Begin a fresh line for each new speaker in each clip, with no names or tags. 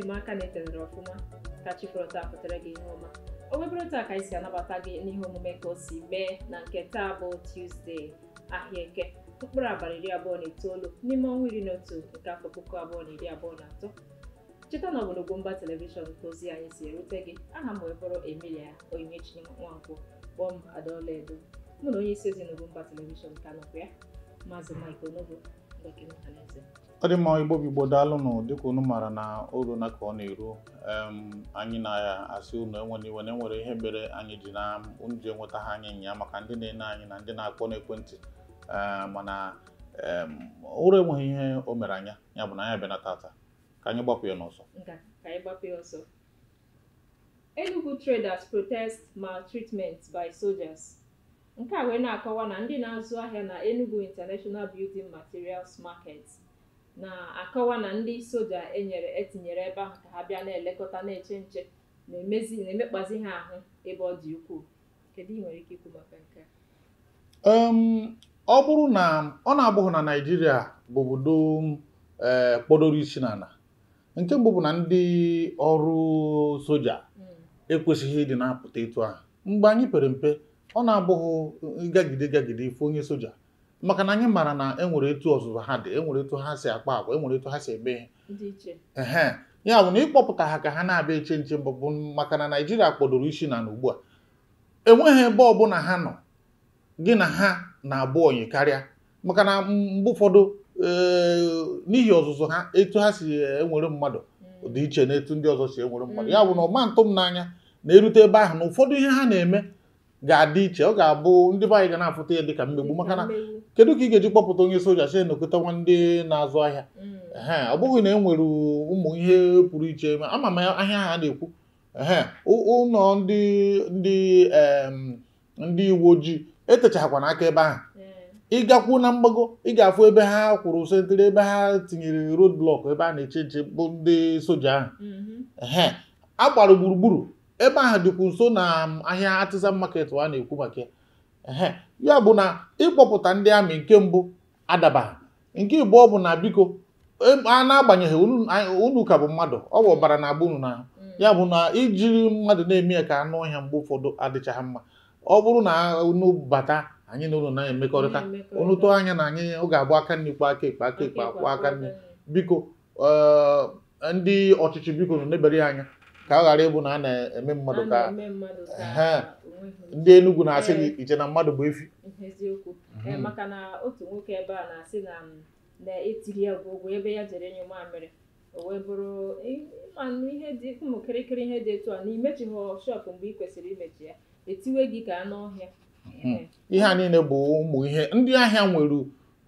eji m aka na etelere ọfụma ka chi taa pụtara gị ihe ọma o webụrụ taa ka anyị si anabata gị n'ihe omume ka o si mee na nke taa bụ Tuzdee ahịa eke mkpụrụ abalị iri abụọ na itoolu n'ime ọnwa iri na otu nke afọ puku abụọ na iri abụọ na atọ cheta na ọ bụ n'Ugwumba telivishọn ozi anyị si erute gị aha m wee bụrụ Emilia Onyinyechi nwa kpọọ m Adaọla Edo mụ na onye isi ezi n'Ugwumba telivishọn ka nọkwa ya maazị Mike Onogo
ọ dị mma igbo bụ igbo daalụnụ dịka unu maara na orona ka ọ na-eru anyị na asị unu enwere iwe na enwere ihe mere anyị ji na unu ji enweta ha anyị nya maka ndị na-ene anyị na ndị na-akpọ n'ekwentị eh, mana ụra enweghị ihe o mere anya ya bụ na anyị bịa tata ka anyị gbapụ ya n'ọsọ
Enugu traders protest maltreatment by soldiers. Nke a wee na-akọwa na ndị na-azụ ahịa na Enugu International Building Materials Market na-akọwa na ndị soja enyere etinyere ebe ahụ ka ha bịa na-elekọta na-eche nche na emekpazi ha ahụ ebe ọ dị ukwuu. Kedu ị nwere ike ikwu maka nke
a? ọ bụrụ na ọ na-abụghị na Naịjirịa bụ obodo eh, kpọdoro isi n'ala nke mbụ bụ na ndị ọrụ soja hmm. ekwesịghị ịdị na-apụta etu ahụ mgbe anyị pere mpe ọ na-abụghị gagide gagide ife onye soja maka na anyị mara na enwere etu ọzụzụ ha dị enwere etu ha si akpa agwa enwere etu ha si eme ehe ya bụ na ịkpọpụta ha ka ha na-abịa eche nche bụ maka na naijiria kpọdoro isi na na ugbu a enweghị ebe ọbụla ha nọ gị na ha na-abụ ọnyị karịa maka na mgbe ụfọdụ n'ihi ọzụzụ ha etu ha si enwere mmadụ hmm. dị iche na etu ndị ọzọ si enwere mmadụ hmm. ya bụ na ọma ntụ m n'anya na-erute ebe ahụ na ụfọdụ ihe ha na-eme ga-adị iche ọ ga-abụ ndị be anyị ga na-afụta ya dịka mmegbu maka na kedu ka ị ga-eji kpọpụta onye soja si nọkọta nwa ndị na-azụ ahịa e ọ bụghị na e nwere ụmụ ihe pụrụ iche ama m ahịa ha na-ekwu ụlọ ndị ndị ndị uwe ojii etechakwa n'aka ebe ahụ ịgakwu na mgbago ị ga-afụ ebe ha kwụrụ sentịrị ebe ha tinyere road blọk ebe a na-eche nche bụ ndị soja ahụ mm-hmm. ehe a gbara gburugburu ebe ahụ dịkwu nso na um, ahịa artisan market a na-ekwu maka ya ya bụ na ịkpọpụta ndị amị nke mbụ adabaghị nke abụọ bụ na biko a na-agbanyeghị unu ka bụ mmadụ ọ bụ ọbara na agba unu na mm. ya bụ na ijiri mmadụ na-eme ya ka anụ ọhịa mgbe ụfọdụ adịchaghị mma ọ bụrụ na unu bata anyị na ụlọ na-emekọrịta unu tụọ anya na anyị ọ ga-abụ aka nri kpa aka ekpe aka ekpe akwụ aka nri biko um, ndị ọchịchị biko nọ na ya anya ka a ghara ịbụ na a na-eme mmadụ ka ndị Enugu na-asị gị iche na mmadụ bụ efi
eziokwu mhm. maka na otu nwoke ebe a na-asị na na etiri ya bụ ụgwọ ebe ya jere nye mamịrị o wee bụrụ ịmanụ ihe dị ụmụ kịrịkịrị ihe dị etu a na imechighị shop mgbe ị kwesịrị imechi ya etiwe gị ka anụ ọhịa
mhm. ihe a niile bụ ụmụ ihe ndị ahịa nwere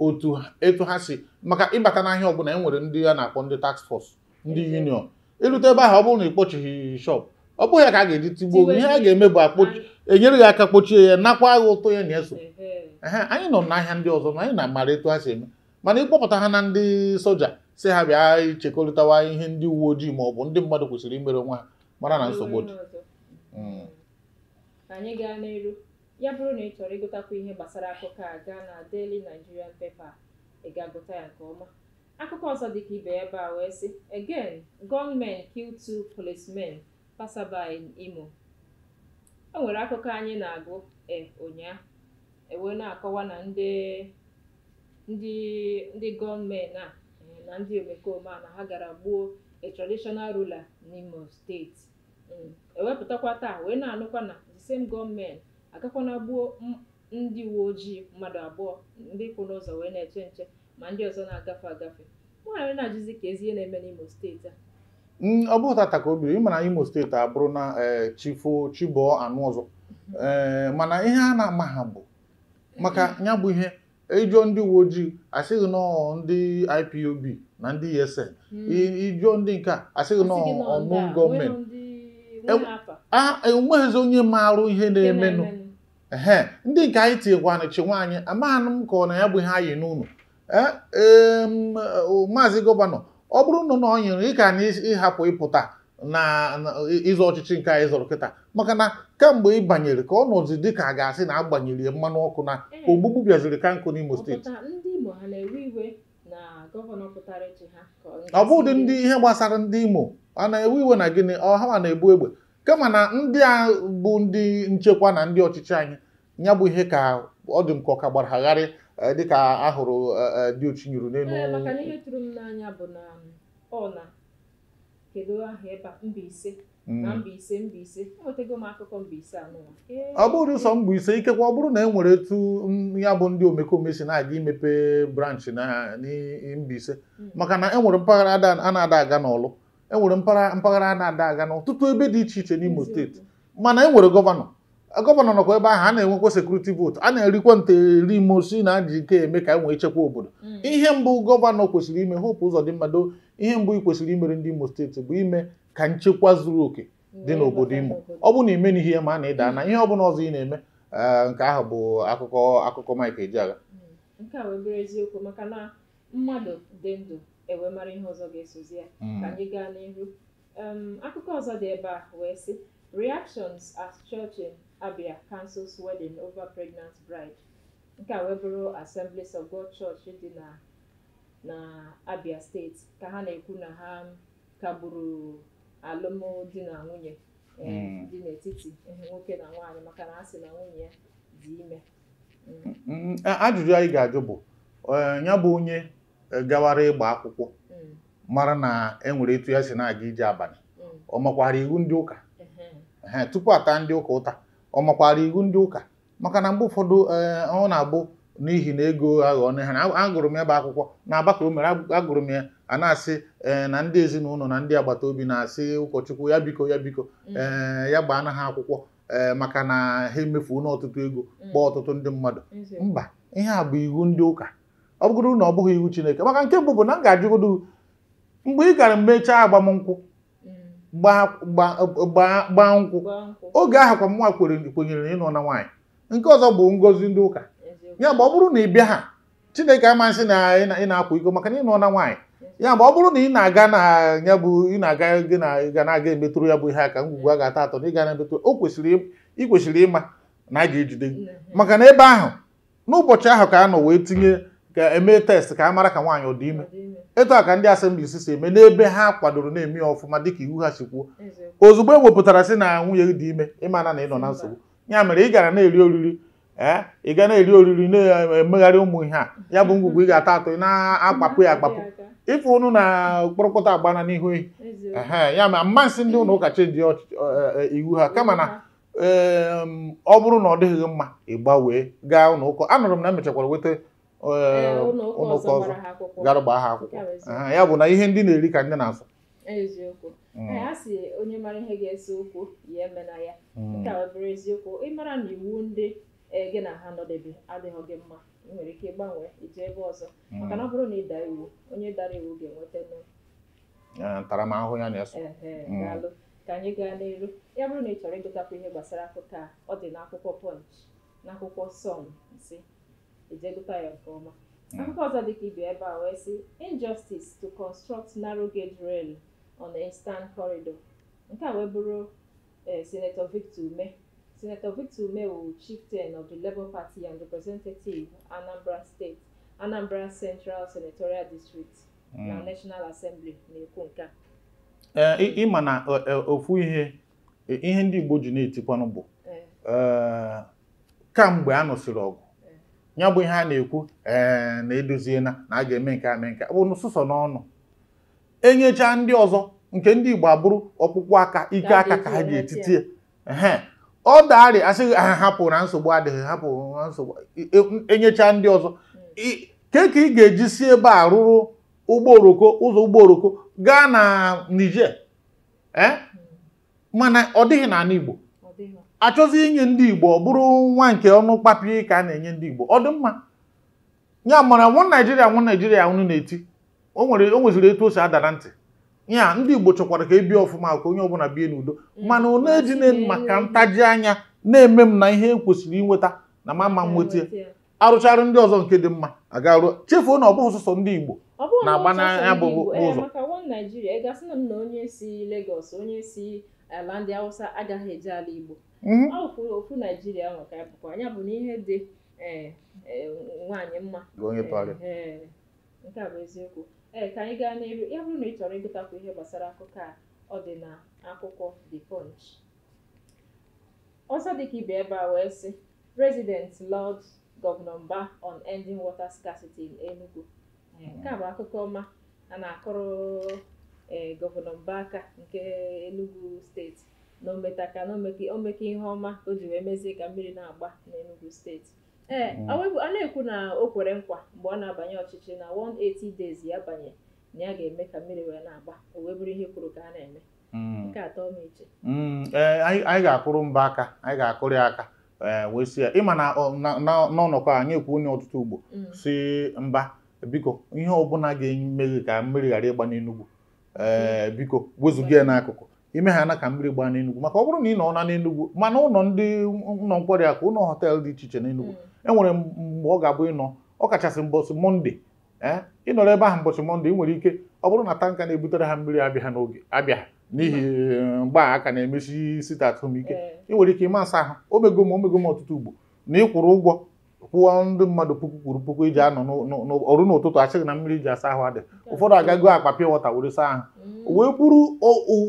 otu etu ha si maka ịbata n'ahịa ọbụla e nwere ndị a na-akpọ ndị taks force ndị union ịlụta ebe ahụ ọ bụrụ na ị kpochighị shọp ọ bụghị ya ka a ga-eji tigbuo ihe a ga-eme bụ enyere gị aka kpochie ya nakwa agha ụtọ ya na-eso anyị nọ n'ahịa ndị ọzọ ma anyị na-amara etu a si eme mana ịkpọpụta ha na ndị soja si ha bịa ichekọrịtawa ihe ndị uwe ojii ma ọ bụ ndị mmadụ kwesịrị imere nwa ha mara na nsogbu dị hmm.
anyị gaa n'elu ya bụrụ na ị chọrọ ịgụtakwa ihe gbasara akụkọ a gaa na Daily Nigerian ị ga-agụta ya nke ọma Akụkọ ọzọ dị ibe ebe a wee sị: “Again, gọọmenti kill two policemen passerby Imo.” O nwere akụkọ anyị na-agụ e ụnyaahụ e wee na-akọwa na ndị ndị ndị e, na ndị omekome a na ha gara gbuo a traditional ruler n'Imo steeti hmm. ewepụtakwa taa wee na-anụkwa na the same gunmen agakwana gbuo ndị uwe ojii mmadụ abụọ ndị kwụ n'ụzọ wee na-eche nche ma ndị ọzọ na-agafe agafe nwaanyị na-ajụzi ka ezi ihe na-eme n'Imo steeti a
mm, ọ bụghị tata ka o biri ịma na Imo steeti abụrụ na e, Chifo Chibụọ anụ mhm. e, mana ihe a na-ama ha bụ maka mhm. ya bụ ihe ịjụọ e ndị uwe ojii asịghị nọ ndị IPOB na ndị ESN ịjụọ mhm. ndị nke a asịghị nọ ọmụ gọọmenti enweghịzi onye maara ihe na-emenụ ndị nke anyị tinyekwanụ chi nwaanyị amaghị m ka ọ na ya bụ ihe anyị n'ụlọ E, maazị gọvanọ ọ bụrụ na na ọ nyere ịka na ịhapụ ịpụta na ịzọ ọchịchị nke anyị zụrụ kịta maka na kemgbe ị banyere ka ọ nọzi dị ka a ga-asị na agbanyere mmanụ ọkụ na e, ogbugbu bịaziri ka nkụ n'Imo steeti ọ bụ ụdị ndị ihe gbasara ndị Imo a na-ewe iwe na gịnị ọha na-ebu egbe kama na ndị a bụ ndị nchekwa na ndị ọchịchị anyị ya bụ ihe ka ọ dị m ka ọ ka gbara agharị Eh, dịka ahụrụ eh, eh, dị ochinyuru n'elu maka na
ihe tụrụ m n'anya bụ na um, ọna kedu aha ebe Mbaise mm. ọ
bụrụ sọ Mbaise ikekwa ọ bụrụ na e nwere etu mm, ya bụ ndị omekome si na-aga imepe branch na Mbaise mm. maka na enwere e mpaghara a na-ada aga n'ọlụ enwere mpaghara a na-ada aga n'ọtụtụ ebe dị iche iche n'Imo steeti mana enwere gọvanọ gọvanọ nọkwa ebe ahụ a na-enwekwa sekuriti vootu a na-erikwa nte eri mosi na ajị ike eme ka nwee chekwa obodo mm. ihe mbụ gọvanọ kwesịrị ime hope ụzọ dị mmado ihe mbụ ị kwesịrị imere ndị imo steeti bụ ime ka nchekwa zuru oke dị n'obodo imo ọ bụrụ na imena ihe ma a na ịda mm. na ihe ọ ọzọ ị na-eme eh, nke ahụ bụ akụkọ akụkọ Mike Ejeagha
mm. nke a wee maka na mmadụ dị ndụ e mara ihe ọzọ ga-esozi ya ka anyị gaa n'ihu akụkọ reactions at church Abia cancels wedding over pregnant bride. Nke a wee bụrụ Assemblies of God Church dị na na Abia steeti ka ha na-ekwu na ha kagburu alụmdi na nwunye eh, hmm. dị n'etiti nwoke na nwaanyị maka na ha sị na nwunye ya dị ime. Hmm.
Hmm. Ajụjụ anyị ga-ajụ bụ eh, ya bụ onye eh, gawara ịgba akwụkwọ mara na enwere etu ya si na-aga ije abalị ọ makwaara iwu ndị ụka tupu ata ndị ụka ụta ọ makwara iwu ndị ụka maka na mgbe ụfọdụ eh, ọ na-abụ n'ihi na ego aghọọ ha agụrụ m ebe akwụkwọ na agbakọ o mere agụrụ m ya a na-asị eh, na ndị ezinụlọ na ndị agbata obi na-asị ụkọchukwu ya biko ya biko mm. eh, ya gbaa na ha akwụkwọ maka na ha emefuo n'ọtụtụ ego mm. kpọọ ọtụtụ ndị mmadụ mba ihe a bụ iwu ndị ụka ọ bụgoro na ọ bụghị iwu Chineke maka nke mbụ bụ na m ga-ajụgodo mgbe ị gara mechaa agbamnkwụ gbaa nkwụ oge ahụ kwa mwa kwenyere na ịnọ na nwaanyị nke ọzọ bụ ngozi ndị ụka ya mgbe ọ bụrụ na ị bịa ha chineke amasị na ị na-akwa iko maka na ịnọ na nwaanyị ya mgbe ọ bụrụ na ị na-aga na ya bụ ị na-aga gị na ga na-aga emetụrụ ya bụ ihe aka ngwugwu a ga-ata atọ na ịga na-emetụrụ o kwesịrị ị kwesịrị ịma na a ga-ejide gị maka na ebe ahụ n'ụbọchị ahụ ka a nọ wee tinye ka eme test ka a mara ka nwaanyị ọ dị ime etu a ka ndị asemblis si eme n'ebe ha kwadoro na-eme ya ọfụma dịka iwu ha si kwuo ozugbo e wepụtara na nwunye dị ime ịmana na ị nọ na nsogbu ya mere ị gara na-eri oriri ee eh, ị ga na-eri oriri na-emegharị ụmụ ihe a ya bụ ngwugwu ị ga-ata atọ na-akpapụ ya akpapụ ife na kpụrụkpụta agbana n'ihu ehi ee ya ma mmasị ndị ụlọ ụka chenji eh, eh, iwu ha kama na ọ bụrụ na ọ dịghị mma ị wee gaa ụlọ ụka anụrụ m na emechakwara nweta ụlọụka ọzọ gara gbaa ha akwụkwọ ya bụ na ihe ndị na-eri ka ndị na-asụ
eziokwu hmm. a sị onye mara ihe ga-ese okwu ya na ya hmm. nke a bụrụ eziokwu ịmara na iwu ndị e, gị na ha nọdebe adịghị gị mma ị nwere ike ịgbanwe ije ebe ọzọ hmm. maka na ọ bụrụ na ịda iwu onye dara iwu ga-enweta
ntaramahụhụ ya na-eso daalụ
ka anyị gaa n'elu ya bụrụ na ị chọrọ ịgụtakwu ihe gbasara akụkọ a ọ dị n'akwụkwọ Punch n'akwụkwọ Sun nsi Ejelukayo Nkeoma. Hmm. Akụkọ ọzọ dịka ibe ebe a wee sị injustice to construct narrow gauge rail on the eastern corridor. Nke a wee bụrụ eh, Senator Victor Ume. Senator Victor Ume wụ chieftain of the Labour Party and representative Anambra State, Anambra Central Senatorial District hmm. na National Assembly na-ekwu nke a.
Eh, Ịma na eh, ofu ihe ihe ndị Igbo ji na-etikwanụ bụ kamgbe a nụsịrị ọgụ ya bụ ihe a na-ekwu ee na edoziena na a ga-eme nke a mee nke bụ n'ụsụsọ n'ọnụ enyecha ndị ọzọ nke ndị Igbo abụrụ ọkpụkpụ aka ike aka ka ha ji etiti ya ọ darị asịghị ha hapụ na nsogbu adịghị hapụ na nsogbu enyecha e ndị ọzọ ke ka ị ga-eji si ebe a rụrụ ụgbọ oroko ụzọ ụgbọ oroko gaa na Niger e? hmm. mana ọ dịghị n'ala Igbo achọzi inye ndị Igbo ọ bụrụ nwa nke ọnụ kpapiri ka a na-enye ndị Igbo ọ dị mma ya mara nwa Naijiria nwa Naijiria unu na-eti o nwere o nweziri etu o si ada na ntị ya ndị Igbo chọkwara ka e bie ọfụma ka onye ọbụla bie n'udo mana ọ na-ejine maka ntaji anya na-eme m na ihe e kwesịrị inweta na mama m nweta arụcharụ ndị ọzọ nke dị mma agaruo chefuo na ọ bụghị ndị Igbo na-agba n'anya bụ ụzọ
Naijiria na onye si Lagos onye si ala eh, ndị Hausa agaghị ala Igbo Mhm. ọ wụkwụ ofu naijiria ahụ ka bụkwa anya bụ na ihe dị e, e, mma e, nke a bụ eziokwu ee ka anyị gaa n'elu ya bụrụ na ị chọrọ ịgụtakwu ihe gbasara akụkọ a ọ dị na akwụkwọ The Punch ọzọ dịka ibe ebe a wee sị President Lord Governor Mba on ending water scarcity in Enugu nke a bụ akụkọ ọma a na-akụrụ gọvanọ Mba aka nke Enugu steeti na ometaka na omeke ihe ọma o ji wee mezie ka mmiri na-agba n'enugwu steeti ee mm. a na-ekwu na o kwere nkwa mgbe ọ na-abanye ọchịchị na 180 days ya banye na ya ga-eme ka mmiri wee na-agba o wee bụrụ ihe kwuru ka mm. a na-eme nke atọ m iche
ee mm, anyị ga-akụrụ mba aka anyị ga-akụrụ ya aka e, wee si ya ịma na n'ọnọkọ anyị ekwu onye ọtụtụ ugbo si mba biko ihe ọbụla ga-eme ka mmiri ghara ịgba n'enugwu ee biko wezụga ya n'akụkụ ime ha na ka mmiri gbaa n'Enugwu maka ọ bụrụ na ị nọ na n'Enugwu mana ụlọ ndị ụlọ nkwari akụ ụlọ họteelụ dị iche iche n'Enugwu mm. enwere mgbe ọ ga-abụ ịnọ ọ kachasị mbọsị mọnde ee eh, ịnọrọ ebe ahụ mbọsị mọnde ị nwere ike ọ bụrụ na tanka na-ebutere ha mmiri abịa n'oge abịa n'ihi eh, mgba aka na-emesi site atụmike eh. ị nwere ike ịma asa ahụ omegom m omego m ọtụtụ ugbo na ịkwụrụ ụgwọ kwụọ ndị mmadụ puku kwuru puku iji anọ ọrụ n'ụtụtụ achịghị na mmiri ji asa ahụ adị ụfọdụ agago akpa pịa wọta were saa ahụ mm. wee kwuru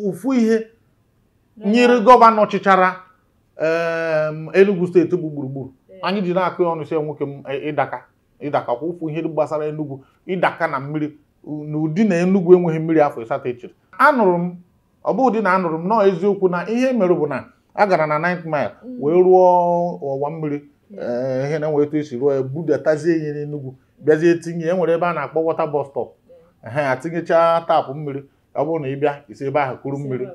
ụfụ ihe nyere gọvanọ chịchara Enugu steeti bụ gburugburu anyị ji na-akụ ya ọnụ sie nwoke m e, ịdaka ịdaka kwa ụfụ ihe gbasara Enugu ịdaka na mmiri na ụdị na Enugu enweghị mmiri afọ ịsatọ echiri anụrụ m ọ bụ ụdị na anụrụ m nọọ eziokwu na ihe mere bụ na a gara na 9 mile mm. wee rụọ ọwa mmiri Eh, ihe na enwe etu esi ruo budatazie ihe n'Enugwu bịazie tinye e nwere ebe a na-akpọ wọta bọstọp ehe atinyechaa taapụ mmiri ọ bụrụ na ị bịa isi ebe ahụ kuru mmiri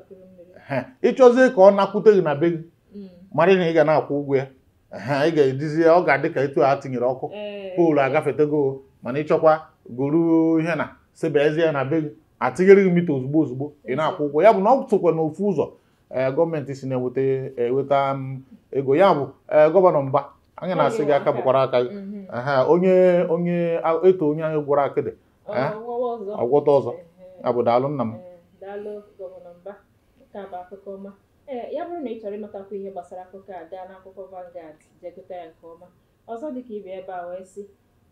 ịchọzie ka ọ nakwute gị na be gị mm. mara na ị ga na-akwụ ụgwọ ya ị ga-ejizi ọ ga-adị ka etu a tinyere ọkụ eh. poolu agafetego mana ịchọkwa goro ihe na sebezie na be gị atinyere gị mita ozugbo ozugbo ị na-akwụ ụgwọ ya bụ na ọ tụkwa n'ofu ụzọ eh, gọọmenti si na-eweta mm, ego ya bụ gọvanọ mba anyị na-asị gị aka bụkwara aka gị mm-hmm. onye onye eto onye ahụ gwọrọ akịdị ọgwọta ọzọ abụ nna m
e, ya bụrụ na ị chọrọ ịmatakwa ihe gbasara akụkọ a gaa n'akwụkwọ Vanguard jegụta ya nke ọma ọzọ dịka ibe ebe a wee sị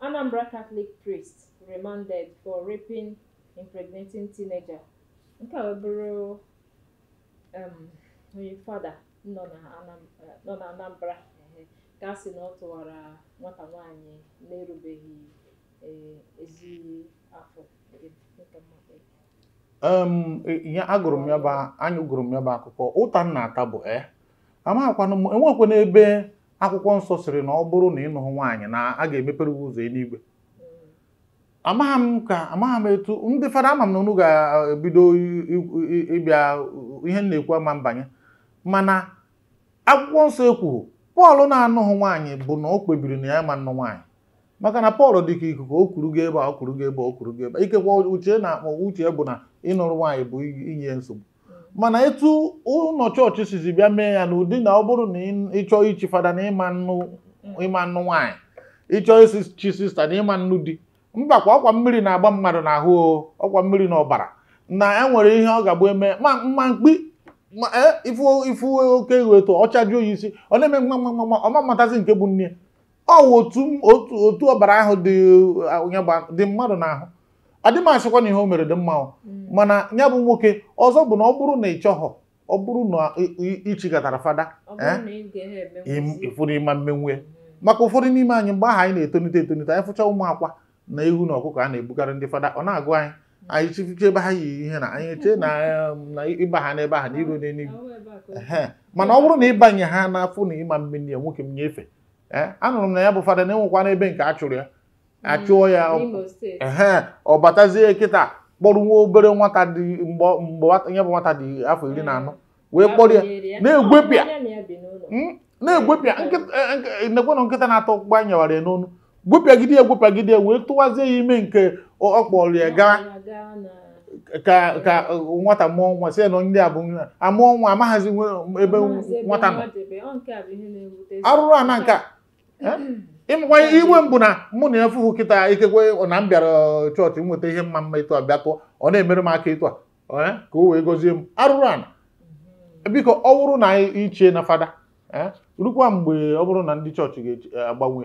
Anambra Catholic priest remanded for raping impregnating teenager nke a bụrụ um, onye fada nọ na Anambra ka sị na ọ tụwara nwata nwaanyị na-erubeghị e, ezi afọ
e, ya agụrụ m ya bụ anyị gụrụ m ya bụ akụkọ ụta nna ata bụ e eh? amaghịkwana m enwekwana ebe akwụkwọ nsọ sịrị na ọ bụrụ na ịnụhụ nwaanyị na a ga-emepere gị ụzọ eluigwe mm. amaghị m ka amaghị m etu ndị fada ama m na unu ga-ebido ịbịa ihe m na-ekwu ama mbanye mana akwụkwọ nsọ ekwughị pọl na-anụghị nwaanyị bụ na o kpebiri na ya ma nụ nwaanyị maka na pọl dị ka ikuku o kwuru gị ebe a o kwuru gị ebe o gị ebe ikekwa uche na-akpọ uche bụ na ịnụrụ nwaanyị bụ inye nsogbu mana etu ụlọ chọọchị sizi bịa mee ya na ụdị na ọ bụrụ na ịchọọ ichi fada na ịma nnụ nwaanyị ịchọọ isi chi sista na ịma nnụ di mbakwa ọkwa mmiri na-agba mmadụ n'ahụ ọkwa mmiri na ọbara e na enwere ihe ọ ga-abụ eme ma mma mkpi Eh, ifu oke ọ ọchajuo ya isi ọ na-eme mgbagbamgbama ọma mmatazi nke bụ nne ọwụ otu ọbara ahụ dị mmadụ n'ahụ adịm asịkwa na ihe o mere dị mma mm. mana ya bụ nwoke ọzọ bụ na ọ bụrụ na ị chọghọ ọ bụrụ na ịchịkọtara fada
eh,
ịfụrụ ịma mmenwe maka ụfọdụ n'ime anyị mgbe ahụ anyị na-etonite etonite anyị fụcha ụmụ akwa na ihu na ọkụkọ a na-ebukarị ndị fada ọ na-agụ anyị anyị chi ebe ha yi ihe na anyị chee na ịba ha n'ebe ahụ na iru n'eluigwe mana ọ bụrụ na ịbanye ha n'afọ na ịma mmiri ya nwoke m nyefe anụrụ m na ya bụ fada na-enwekwa n'ebe nke a chụrụ ya achụọ ya ee ọ batazie kịta kpọrọ nwa obere nwata dị mgbe ya bụ nwata dị afọ iri na anọ wee kpọrọ ya na-egwepịa na-egwepịa nekwenụ nkịta na-atọ gbanyewara ya n'ọnụ gwepịagide ya egwepịagide ya wee tụwazie ya ime nke ọ kpọrọ ya gaa ka e, nwata mụọ nwa sị na ndị a bụ nwa mụọ nwa amaghazi ebe nwata nọ
arụrụ a na nke
ịmakwa iwe mbụ na mụ na ya fụfụ kịta ikekwe na m bịara uh, chọọchị nweta ihe mma mma ịtụ a bịa tụọ ọ na-emere m aka ịtụ a ka o wee gozie m arụrụ a mhm. biko ọ bụrụ na iche na fada rukwa mgbe ọ bụrụ na ndị chọọchị ga-agbanwe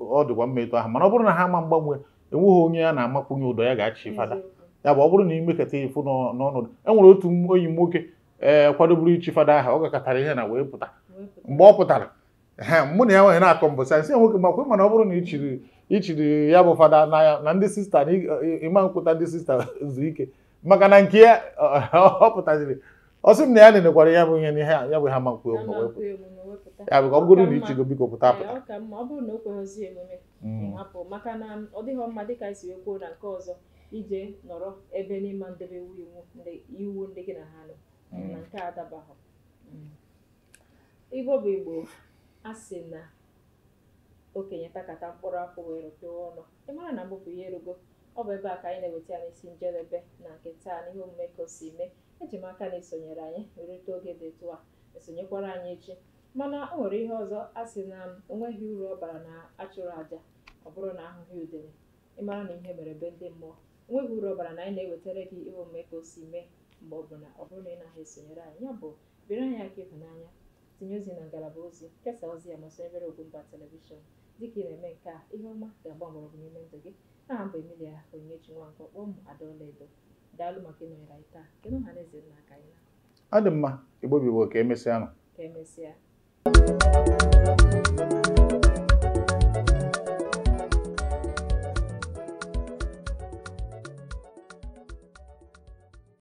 ọ dịkwa mma ịtụ ahụ mana ọ bụrụ na ha ma mgbanwe enweghị onye a na-amakwunye ụdọ ya ga-achị fada ya bụ ọ bụrụ na ị mekata ifu n'ọnọdụ e nwere otu onyi nwoke ee kwadoburu ichi fada aha ọ gakọtara ihe na wee pụta mgbe ọ pụtara mụ na ya nwere na-akọ mbụ sansị ya nwoke makwe mana ọ bụrụ na ichiri ichiri ya bụ fada n'anya na ndị sista na ịma nkwụta ndị sista zuru ike maka na nke ya ọ pụtaziri ọ sị m na ya nenekwara ya bụ ihe n'ihe ya bụ ha ma nkwe emume
ya bụ ka ọ bụrụ na ichigo biko pụta pụta ọ bụrụ na o kweghịzi emume mm. hapụ maka na ọ dịghị mma dịka esi wee kwuo na nke ọzọ ije nọrọ ebe n'ịma ndebe iwu iwu ndị gị na ha nọ mm. na nke adabahụ mm. igbo bụ igbo asị na okenye takata mkpụrụ akwụ wee rụpịa ọnụ ị mara na mbụ bụ ihe erugo ọ bụ ebe a ka anyị na-eweta ya n'isi njedebe na nke taa na ihe omume ka o si mee eji m aka na esonyere anyị rute oge dị etu a esonyekwara anyị echi mana o nwere ihe ọzọ a sị na onweghị uru ọ bara na achụrụ aja ọ bụrụ na ahụghị udele ịmara na ihe mere be ndị mmụọ onweghị uru ọ bara na anyị na-ewetara gị ihe omume ka o si mee mgbe ọ bụ na ọ bụrụ na ị naghị esonyere anyị ya bụ biri anyị aka ịhụnanya tinye ozi na ngalaba ozi kesaa ozi ya ma sonyebere mba telivishọn dịka ị na-eme nke a ihe ọma ga-agba mgbọrọgwụ n'ime ndụ gị aha mbụ Emilia Onyinyechi Nwankwo kpọọ m Adaọla Edo daalụ maka ịnọnyere taa kedu na eze
ọ dị mma igbo bụ ka emesịa nụ
emesịa